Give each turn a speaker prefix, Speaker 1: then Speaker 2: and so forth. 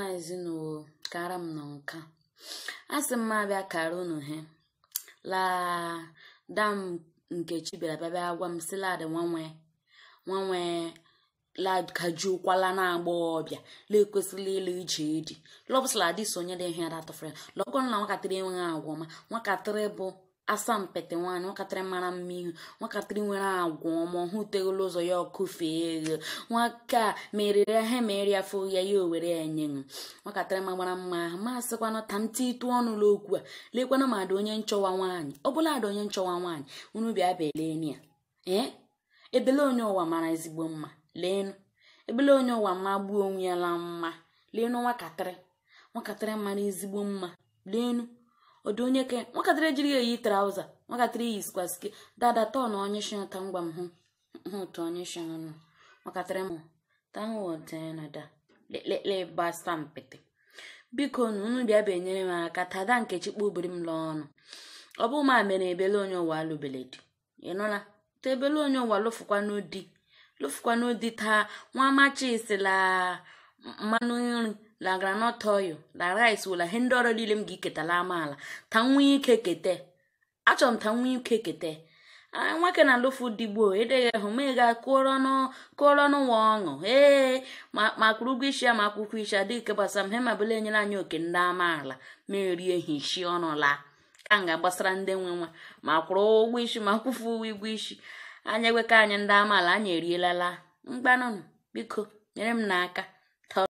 Speaker 1: ọma ezinụlọ kara m na nka a sị m abịa kara unu he laa m nkechi bịara bịa gwa m si lad nwanwe nwanwe lad kajukwala na ọbịa la ekwesịla ịlụ ije edi lọbụsala dị sonye dị ihe datọfere lọkọ na nwakatịrị enweghị agwa ọma nwakatịrị bụ asaa mpete nwaanyị mara mma ihu nwakatịrị nwere agwa ọma hụ ụzọ ya ọkụfee ego nwaka meriri ahịa mere ya ya ya owere ya nye nwatakịrị magbara mma ahụ masịkwana ta ntị ịtụ ọnụ n'okwu a lekwana ma ada onye nchọwa nwaanyị ọ bụla ada onye nchọwa nwaanyị unu bịa beleni ya ee ebele onye ụwa mara ezigbo mma leenụ ebele onye ụwa ma gbuo onwe ya la mma leenụ nwatakịrị nwatakịrị mara ezigbo mma leenụ ọdụ onye ke nwatakịrị ejiri eyi traụza nwatakịrị iyi skwasike dada tọn onye shi ụta ngwa m hụ hụ ụtọ onye shi ọnụ nwatakịrị m tanwodnada eh, lele gbasa mpịtị biko nu unu bịa bịa enyere m aka tada nkechi kpubiri m lụọ ọ bụ ma mere ebele onye ụwa alụbele di ị nụla ta ebele onye ụwa lụfụkwanụ di lụfụkwanụ di taa nwa amachị sila mmanụ nri la groundnut oil la rice wela ihe ndị ọrụ niile m ga-eketala amaala ta nwe ike kete achọrọ m ta nwe ike kete nwoke na alụfu digbo edeghị hụ ma ị ga-akụọrọ n'ụwa ọṅụ ee ma kwụrụ ụgwọ isi ya ma akwụkwọ isi ya dịka gbasara m he ma enyere anyị oke ndị amaala ma erie hishi ọnụ laa ka m ga-agbasara ndị nwe nwa ma kwụrụ ụgwọ isi ma kwụfu ụgwọ isi anya gweka anyị ndị amaala anyị erielala mgbanụnụ biko nyere m n'aka